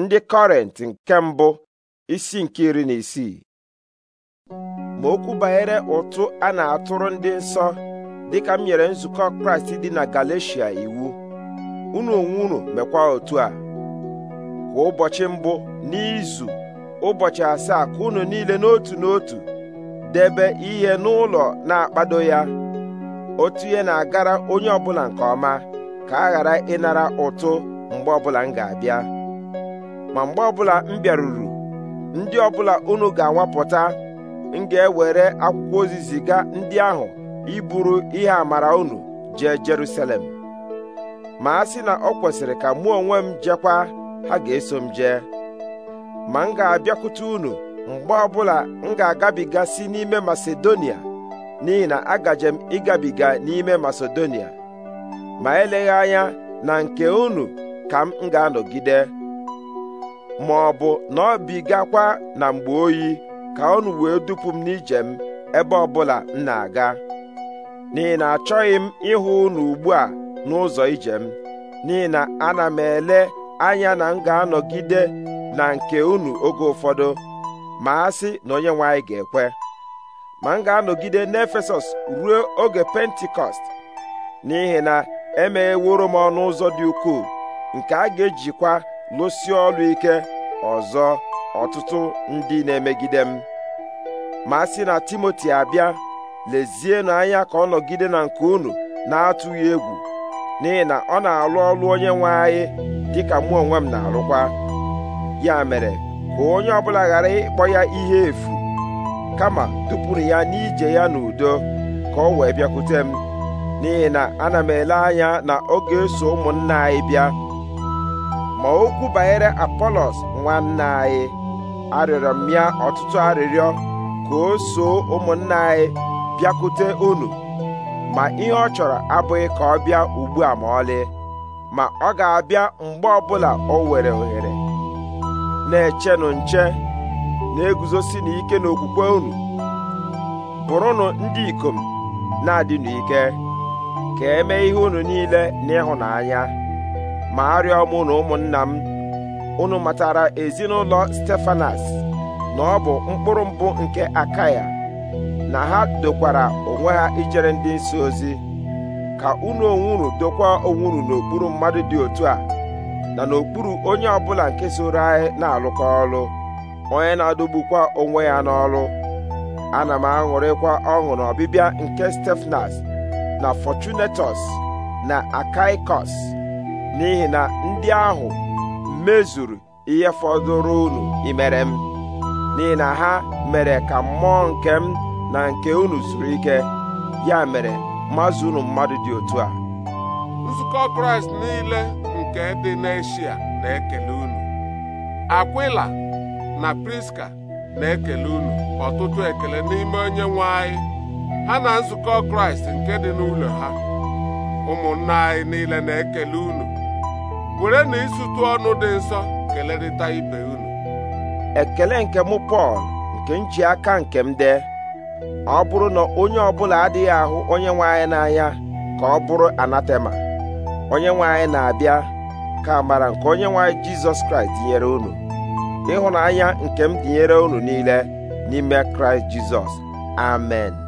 ndị kọrent nke mbụ isi nke iri na isii ma okwu banyere ụtụ a na-atụrụ ndị nsọ dịka m nyere nzukọ kraịst dị na galeshia iwu unu onwe unu mekwa otu a kwa ụbọchị mbụ n'izu ụbọchị asaa ka unu niile n'otu n'otu debe ihe n'ụlọ na-akpado ya otu ihe na-agara onye ọbụla nke ọma ka a ghara ịnara ụtụ mgbe ọbụla m ga-abịa ma mgbe ọbụla m bịaruru ndị ọbụla unu ga-anwapụta m ga-ewere akwụkwọ ozi ziga ndị ahụ iburu ihe amara unu jee Jerusalem ma a sị na ọ kwesịrị ka mụ onwe m jekwa ha ga-eso m jee ma m ga-abịakwute unu mgbe ọbụla m ga agabigasi n'ime Masedonia n'ihi na agaje m ịgabiga n'ime Masedonia ma eleghị anya na nke unu ka m ga-anọgide ma ọ bụ na ọ bigakwa na mgbe oyi ka unu wee dupu m n'ije m ebe ọbụla m na-aga n'ihi na achọghị m ịhụ unu ugbu a n'ụzọ ije m n'ihi na ana m ele anya na m ga-anọgide na nke unu oge ụfọdụ ma a sị na onye nwe anyị ga-ekwe ma m ga-anọgide n'Efesọs ruo oge pentikọst n'ihi na emegheworo m ọnụ ụzọ dị ukwuu nke a ga-ejikwa lụsie ọrụ ike ọzọ ọtụtụ ndị na-emegide m ma a sị na Timoti abịa lezienụ anya ka ọ nọgide na nke unu na-atụghị egwu n'ihi na ọ na-alụ ọlụ onye nwe anyị dịka mụ onwe m na-alụkwa ya mere ka onye ọbụla ghara ịkpọ ya ihe efu kama tụpụrụ ya n'ije ya n'udo ka ọ wee bịakwute m n'ihi na ana m ele anya na ọ ga-eso ụmụnna anyị bịa ma okwu banyere apọlọs nwanne anyị arịọrọ m ya ọtụtụ arịrịọ ka o soo ụmụnna anyị bịakwute unu ma ihe ọ chọrọ abụghị ka ọ bịa ugbu a ma ọlị ma ọ ga-abịa mgbe ọbụla o were ohere na-echenụ nche na-eguzosi n'ike okwukwe unu bụrụnụ ndị ikom na-adịnụ ike ka eme ihe unu niile n'ịhụnanya ma arịọ m na ụmụnna m unu matara ezinụlọ stefanas na ọ bụ mkpụrụ mbụ nke akaya na ha dokwara onwe ha ijere ndị nsị ozi ka unu onwuru dokwa onwuru n'okpuru mmadụ dị otu a na n'okpuru onye ọbụla nke soro anyị na-alụkọ ọlụ onye na-adogbukwa onwe ya n'ọlụ ana m aṅụrịkwa ọṅụ na ọbịbịa nke stefanas na fortunatus na akaikos n'ihi na ndị ahụ mezuru ihe fọdụrụ unu imere m n'ihi na ha mere ka mmụọ nke m na nke unu zuru ike ya mere mazụ unu mmadụ dị otu a nzukọ kraịst niile nke dị n'eshia na-ekele unu akwila na priska na-ekele unu ọtụtụ ekele n'ime onye nwe anyị ha na nzukọ kraịst nke dị n'ụlọ ha ụmụnna anyị niile na-ekele unu were na ịsụtụ ọnụ dị nsọ kelerịta ibe unu ekele nke mụ Pọl nke m ji nke m dee ọ bụrụ na onye ọbụla adịghị ahụ onye nwe anyị n'anya ka ọ bụrụ anatema onye nwe anyị na-abịa ka amara nke onye nwe anyị Jizọs Kraịst dinyere unu ịhụnanya nke m dinyere unu niile n'ime Kraịst Jizọs amen